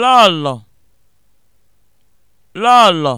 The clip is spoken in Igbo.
lọlọ lọlọ